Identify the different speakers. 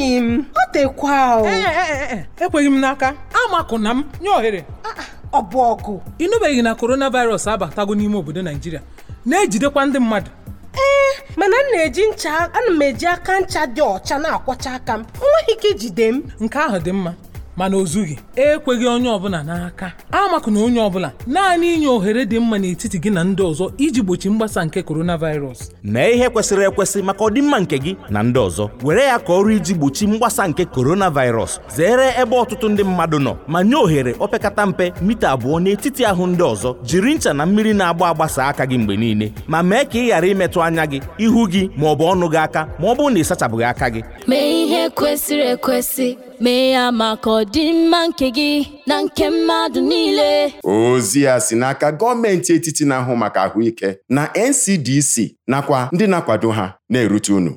Speaker 1: enyi m ọ dịkwa eh, eh, eh, ekweghị m n'aka amakụna m nye ohere ah, ah, ọ bụ ọgụ ịnụbeghị na coronavirus abatago n'ime obodo naijiria na-ejidekwa ndị mmadụ ee mana m na-eji ncha ana m eji aka ncha dị ọcha na-akwọcha aka m enweghị ike ijide m nke ahụ dị mma mana o ekweghị onye ọbụla n'aka na onye ọbụla naanị inye ohere dị mma n'etiti gị na ndị ọzọ iji gbochi mgbasa nke coronavirus
Speaker 2: mee ihe kwesịrị ekwesị maka ọdịmma nke gị na ndị ọzọ were ya ka ọrụ iji gbochi mgbasa nke coronavirus zere ebe ọtụtụ ndị mmadụ nọ ma nye ohere opekata mpe mita abụọ n'etiti ahụ ndị ọzọ jiri ncha na mmiri na-agba agbasa aka gị mgbe niile ma mee ka ị ghara imetụ anya gị ihu gị ma ọ bụ ọnụ gị aka ma ọ bụrụ na ị
Speaker 3: aka gị mee ya maka ọdịmma nke gị na nke mmadụ niile
Speaker 2: ozi ya si n'aka gọọmenti etiti na-ahụ maka ahụike na NCDC nakwa ndị na-akwado ha
Speaker 3: na-erute unu